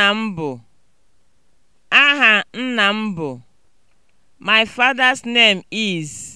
nna m bụ Aha nna m bụ My father's name is.